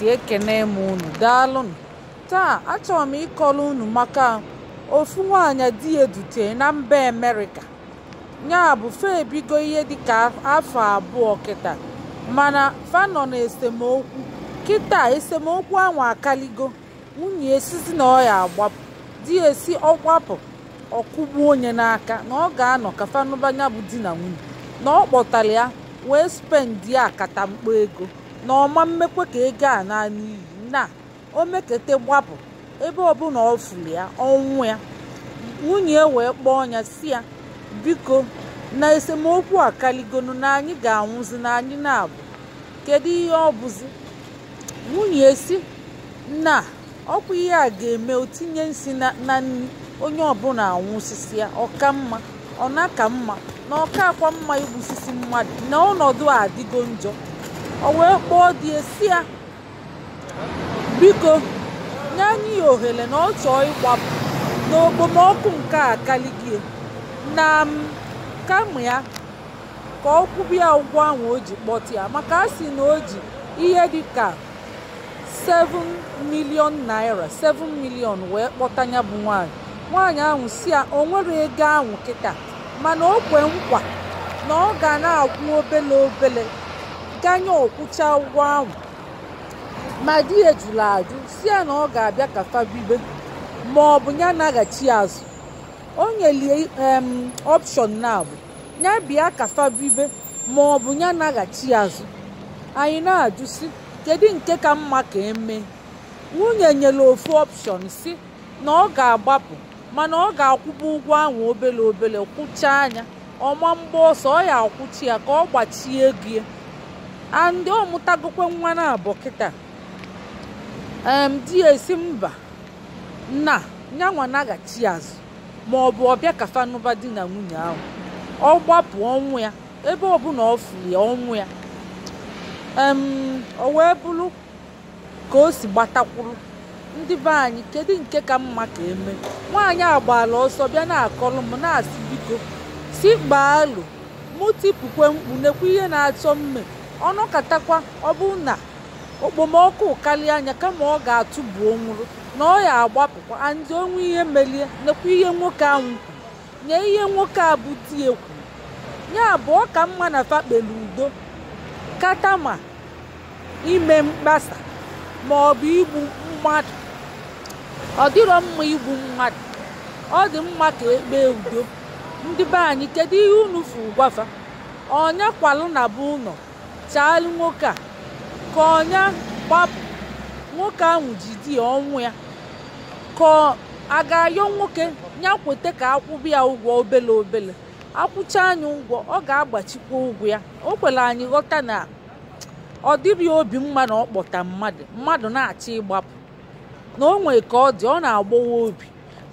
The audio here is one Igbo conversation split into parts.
ntị ekene m unu daalụnụ taa achọrọ m ịkọrọ unu maka ofu nwaanyị di edute na mba amerịka ya bụ fa ebigo ihe ka afọ abụọ kịta mana fa nọ na esemokwu kịta esemokwu ahụ akaligo nwunye esizi na ọ agbapụ di esi ọgbapụ ọkụgbu onye n'aka na ọ ga-anọ ka fanụbanya bụ di na nwunye na ọ kpọtara ya wee akata akatamkpo ego na ọma mmekwe ka ego a na n'iyi na o mekete gbapụ ebe ọbụla ọ fụrụ ya ọnwụ ya nwunye e wee kpọọ ya si ya biko na esemokwu a kaligonu na anyị ga-anwụzi na anyị na-abụ kedu ihe ọ bụzi nwunye e si na ọkwa ihe a ga-eme otinye nsi na nri onye ọbụla anwụsisi ya ọka mma ọna ka mma na ọka akwa mma igbusisi mmadụ na ọnọdụ a adịgo njọ o wee kpọọ dị esi ya biko nye anyị ya ohere na ọ chọọ ịkwapụ n'okpomọkụ nke a kaligie na m kama ya ka ọ kwụba ya ụgwọ ahụ o ji kpọta ya maka a sị na o ji ihe dị ka 7 naira 7 milion wee kpọta ya bụ nwanyị. nwaanyị ahụ si ya o nwere ego ahụ kịta mana o kwe nkwa na ọ ga na-akwụ obele obele ganye ọkwụcha ụgwọ ahụ ma di ya jụrụ ajụ si ya na ọ ga-abịa ka fabibe ma ọ bụ ya naghachi azụ o nyelie ọpshọn na abụ ya bịa ka fabibe ma ọ bụ ya naghachi azụ anyị na-ajụ si kedu nke ka mma ka eme nwunye nyere ofu ọpshọn si na ọ ga-agbapụ mana ọ ga-akwụba ụgwọ ahụ obele obele kwụchaa anya ọma mgba ọsọ ọ ya akwụchi ya ka ọ gbachie ego ya andị ọ mụtagokwe nwa na abụ kịta di ya esi mba na nyanwa naghachi azụ ma ọ bụ ọbịa kafanụba di na nwunye ahụ ọ gbapụ ọnwụ ya ebe ọbụla ọ fụli ọnwụ ya em o wee bụrụ ka o si gbatakwuru ndị be anyị kedu nke ka mma ka eme nwaanyị agbala ọsọ bịa na-akọrọ m na-asị biko si gbaa mụ tipụkwe mkpu nekwa ihe na-achọ mme ọnụ ọ bụ na okpomọkụ karịa anya kama ọ ga-atụbu nwụrụ na ọ ya agbapụkwa andị onwe ihe melie nekwa ihe nwoke ahụ kwuru nye ihe nwoke a bụ di ekwu ya abụọ ka mma na fakpelu udo kata ma ime mkpasa ma ọ bụ igbu mmadụ ọ dịrọ mma igbu mmadụ ọ dị mma ka ekpee udo ndị be anyị kedu ihe unu fụ gwafa ọnya kwalụ na be ụlọ chaalụ nwoke a ka ọnya gbapụ nwoke ahụ ji di ya ọnwụ ya ka a ga-ayọ nwoke ya kweta ka akwụbụ ya ụgwọ obele obele akwụcha anyị ụgwọ ọ ga-agbachikwa ụgwọ ya o kwere anyị ghọta na ọ dịrị obi mma na ọ kpọta mmadụ mmadụ na-achọ ịgbapụ na o nwee ka ọ dị ọ na-agbawa obi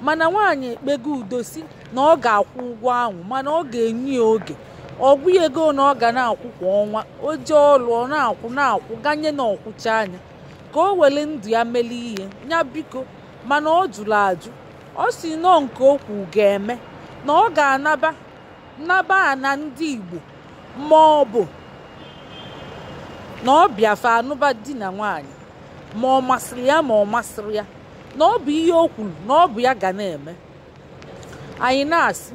mana nwaanyị ekpego udo si na ọ ga-akwụ ụgwọ ahụ mana ọ ga-enye ya oge ọgwụ ego na ọ ga na-akwụ kwa ọnwa o jee ọlụ ọ na-akwụ na-akwụ ganye na ọkwụcha anya ka o were ndụ ya mele ihe ya biko mana ọ jụrụ ajụ ọ si nọọ nke okwu ga-eme na ọ ga-anaba a na ndị Igbo ma ọ bụ na ọ bịafe anụba di na nwaanyị ma ọ masịrị ya ma ọ masịrị ya na ọ bụ ihe o kwuru na ọ bụ ya ga na-eme anyị na-asị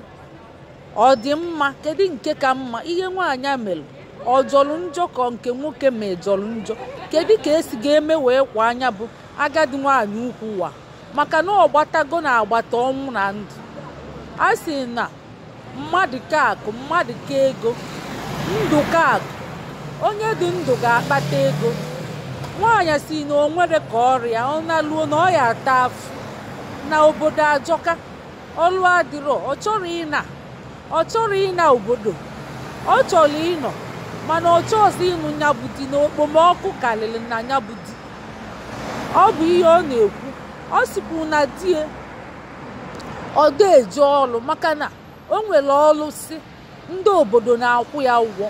ọ dị mma kedu nke ka mma ihe nwaanyị mere ọ jọrọ njọ ka nke nwoke ma jọrọ njọ kedu ka esi ga-eme wee kwa anya bụ agadi nwaanyị ukwu ụwa maka na ọ gbatago na agbata ọnwụ na ndụ a sị na mmadụ ka mmadụ ka ego ndụ ka onye dị ndụ ga-akpata ego nwaanyị si na o nwere ka ọrịa ọ naluo na ọ ya ata afụ na obodo ajọka ọlụ adịrọ ọ chọrọ ịna ọ chọrọ ịna obodo ọ chọrọ ịnọ mana ọ chọọzi ịnụ nyabụ di na okpomọkụ karịrị na nyabụ di ọ bụ ihe ọ na-ekwu ọ sikwu na di e, ọ ga eji ọlụ maka na o nwere ọrụ si ndị obodo na-akwụ ya ụgwọ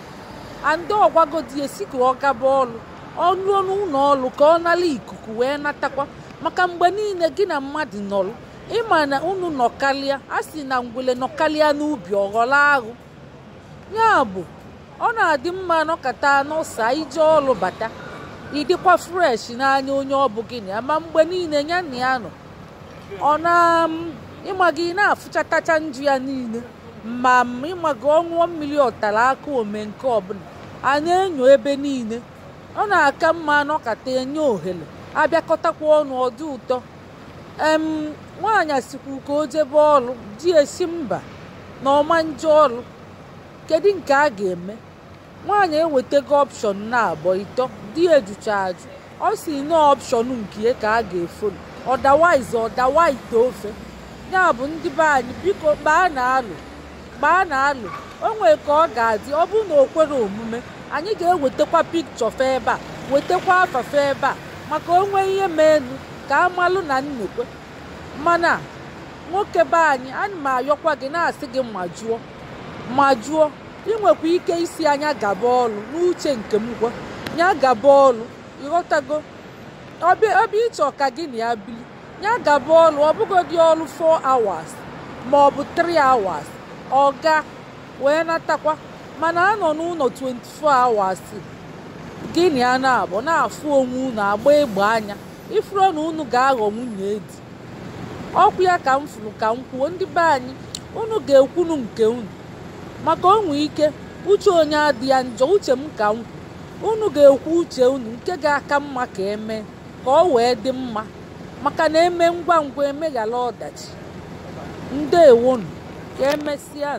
a ndị ọgwagodi esi ka ọ gaba ọ nụọ n'ụlọ ọlụ ka ọ nara ikuku wee natakwa maka mgbe niile gị na mmadụ nọrụ ịma na unu nọkalịa a sị na ngwele nọkalịa n'ubi ọghọla aghụ ya bụ ọ na-adị mma nọkata n'ụsa ije ọlụ bata ịdịkwa fresh n'anya onye ọ bụ gịnị ama mgbe niile ya na ya nọ ọ na ịma gị na-afụchatacha nju ya niile ma ịma gị ọṅụọ mmiri ọtara aka ome nke ọbụla a na-enyo ebe niile ọ na-aka mma nọkata enye ohere abịakọtakwa ọnụ ọdị ụtọ nwaanyị sikwu ka o jebe ọlụ di esi mba na ọma nje ọlụ kedu nke a ga-eme nwaanyị ewetago ọpshọn na abọ ịtọ di ejucha ajụ ọ si na ọpshọn nke ka a ga-efolu ọdawaiz ọdawa ito ofe ya bụ ndị be anyị biko gbaa na alụ gbaa na alụ o ka ọ ga-adị ọ bụrụ na o kwere omume anyị ga-ewetakwa pikchọ fe ebe a wetakwa afafe ebe a maka o nwee ihe meenu ka amalụ na nnekwe mana nwoke be anyị ana m ayọkwa gị na-asị gị majuo jụọ inwekwa ike isi anya gaba ọlụ n'uche nke m gwa ya gaba ọlụ ịghọtago ọbịa ịchọ ka gị na ya bili ya gaba ọlụ ọbụgodị ọlụ 4 hours ma ọ bụ 3 hours ọ ga wee natakwa mana anọ n'ụlọ 24 hours gị na ya na na-afụ onwe unu agba egbe anya ifuru na unu ga-aghọ nwunye edi ọkwụ ya ka m furu ka m kwuo ndị be anyị unu ga-ekwunu nke unu maka onwe ike uche onye adị ya njọ uche m ka m unu ga-ekwu uche unu nke ga-aka mma ka eme ka ọ wee dị mma maka na eme ngwa ngwa emeghala ọdachi ndewonu ka emesịa